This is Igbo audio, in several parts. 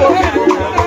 Thank you.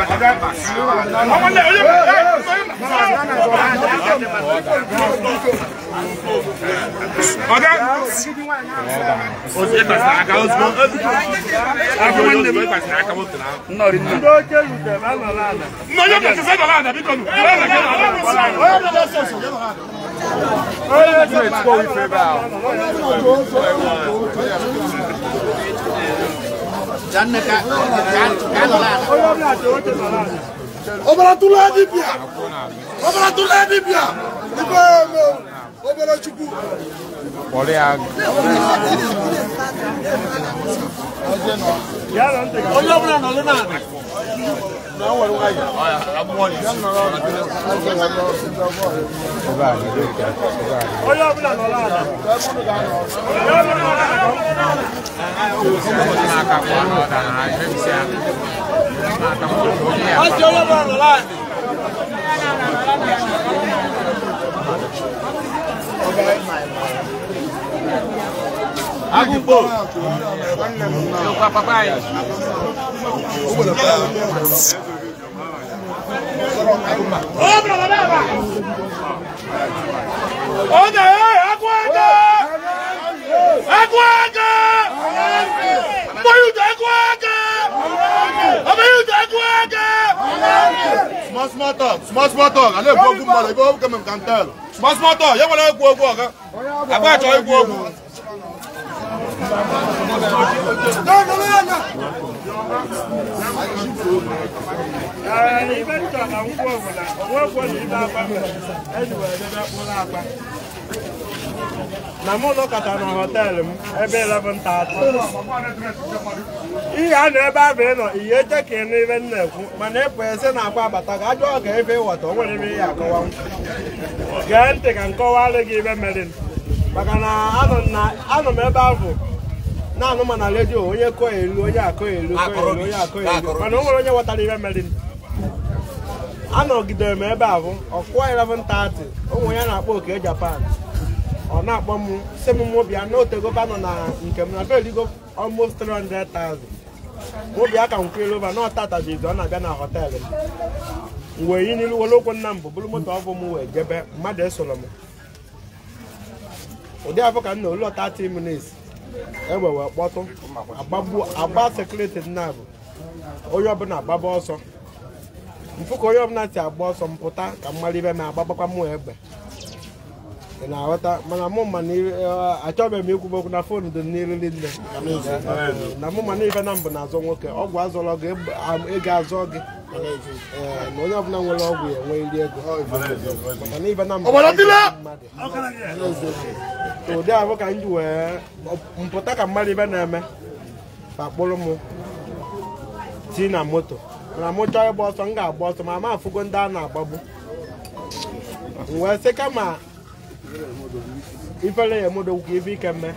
ọ̀gá ọ̀sẹ̀ gbàsẹ̀ àga ọ̀sùn àfọwọ́n ní ẹ̀mí gbàsẹ̀ àga ọ̀sùn náà. nnọọ rí nà. ndo oke lute ma nọ n'ala. nnọọ yóò kẹsì sẹ́dọ̀ láàdà bí kọ́nù. ọ̀rẹ́ mi kẹ́nà ọ̀rẹ́ mi sọ̀rọ̀ ọ̀rẹ́ mi lọ sọ̀sọ̀ yẹ́nà láàdà. ọ̀rẹ́ mi kẹ́nà ọ̀rẹ́ mi sọ̀rọ̀ ọ̀rẹ́ mi lọ sọ̀sọ̀ yẹ́nà láàdà janna ka ka lala obala tula di bia obala tula di bia ibe mo obala chuku Olé a. Olé a. Olé a. Agumbo. Tá Meu papai. Oga ye akwaka akwaka Moyuta akwaka Abayuta akwaka Small small talk small small talk ale gbo ogun mara ibo ogun kemem kan tell Small small talk ye wala egwu ogun oga Agba cho egwu na ngwa na ibe m ebe 11 ihe a na ebe abịa nọ ihe eche ka ị n'ibe m na-ekwu mana ịpụ e eze na-akwa agbata ga ajọ ọga ebe ịwọta o nwere ime ihe akọwanwu gee ntị ka m gị ibe mere anọ ebe abụ na-anụ ma na redio onye kọọ elu onye akọ elu onye akọ elu mana o nwere onye ghọtara ihe mere anọgidere m ebe ahụ ọkụwa 11:30 ụmụ ya na-akpọ oke japan ọ na-akpọ m si m mobia na otegoba nọ na nke m na beligo almost 300,000 mobia ka nkwelova na ọtatajizi ọ na-abịa na họteelụ m wee yi n'ilu were okwu nna m bụ bụrụ moto ọbụ m wee jebe mmadụ esoro m ụdị afọ ka m na olu 30 minutes egbe kpọtụ agba sekuriti nna bụ onye ọbụla agbaba ọsọ mfụ onye ọbụla si agba ọsọ mpụta ka mmadụ ibe m agbagbakwa mụ egbe ị na-aghọta mana mụ ma eh, achọbeghị m ikwube okwu na fon dị n'iriri nne na mụ ma na na mbụ na-azọ nwoke ọgwụ azọrọ gị ego azọ gị na onye ọbụla nwere ọgwụ ya enwee ndị ego ụdị ahụ ka m ji wee mpụta ka mmadụ ibe na-eme ka kpụrụ m ti na moto mana m chọọ ịgba ọsọ m ga-agba ọsọ ma ma afụgo ndị a na-agbagbu wee sị kama ifele ya emedo ụkwụ ife ike mme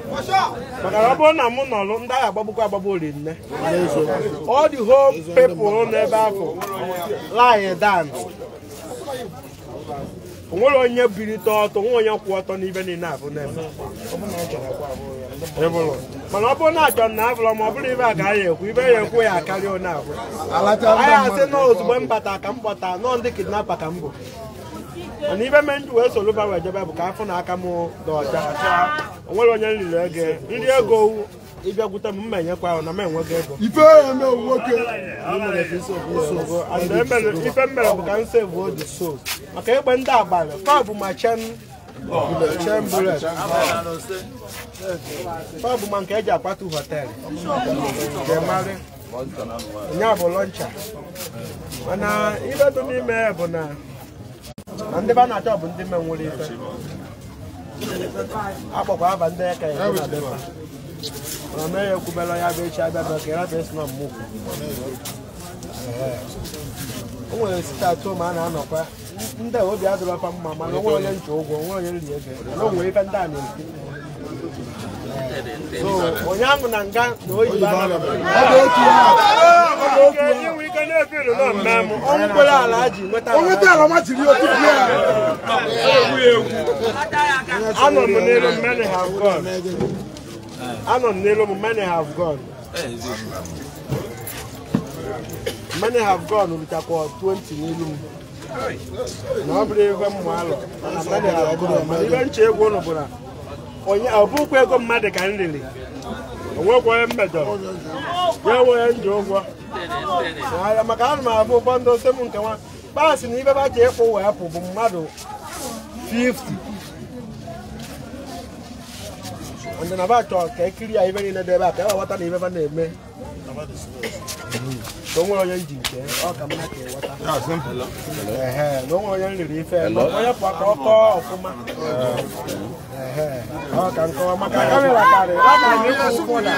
maka na ọ bụrụ na mụ nọlụ ndị agha agbagbukwu agbagbu oli nne all the whole people n'ebe ahụ lie down nwere onye birite ọtọ nwe onye kwụ ọtọ n'ibe niile abụ na-eme mana ọ bụrụ na achọ na abụrọ ma ọ bụrụ ibe a ka ya ekwu ibe ya ekwu ya akarịa onye abụ anyị asị na ozugbo m bata ka m kpọta nọọ ndị kidnapa ka m bụ mana ibe me ndụ wee soluba wee jebe bụ ka afọ na aka m dị ọcha nwere onye nliri ego nri ego ịbịagwute m mma enyekwa ahụ na m enweghị ego ife mere bụ ka m sevu oji so maka ịgbe ndị abalị fa ma chen fa bụ ma nke eji akwatu họtelụ onye bụ lọncha mana ibe dị ya bụ na na ndị a na-achọ bụ ndị menwere ife akpọkwa aba ndị eke ya na mee ya ekwubela ya bụ echi abịa bụ ekere bụ esi na mmụkwu o nwere site atụ ma a na-anọkwa ndị obi adịrọfa mma mana onwe onye nche ụgwọ onwe onye nri ego na onwe ife ndị a na-eti onye ahụ na nga na oyibo onweta ala ma jiri otutu ya anọ m n'elu many have gone anọ m n'elu many have gone many have gone 20 n'elu m na ọ bụrụ ego alọ ibe nche egwu ụnụ bụ na ọ bụkwa ego mmadụ ka m riri onwekwa onye mmejọrọ ya enwe onye nji ụgwọ maka ana m abụ ụfọdụ ose m nke nwa paasị na ibe ba ji ịkwụ wee pụ bụ mmadụ 50 ndị na abachọ ka ekiri ya ibe niile dị ebe a ka ewe ghọta na ibe na eme na o nwere onye nji nke ọ ka mma ka ịghọta na o nwere onye riri ife onye pụọ ka ọ kọọ ọfụma ọ ka nkọwa maka kamera karị akara na ịkwụ ụkwụ na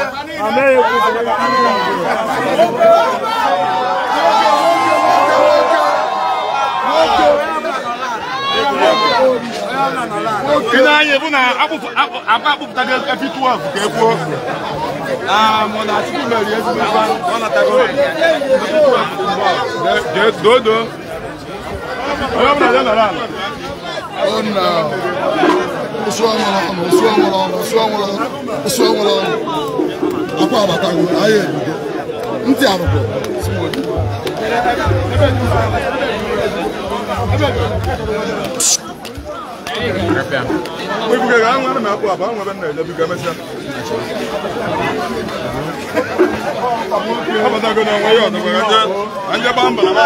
amaghị ekwu kamera kamera ị na-anya bụ na agba akpụpụtago efi 12 ka e kwuo mana Chukwu meri ezigbo ife ọ natago dodo onye ọbụla dị nọrọ ala akwa abatago ahịa ebido ntị arụkọ Thank you. webugaga ha nwana na-akpụ abụ anwa ebe m na-ejebiga ya ọdọgwara je anje gbaa mba na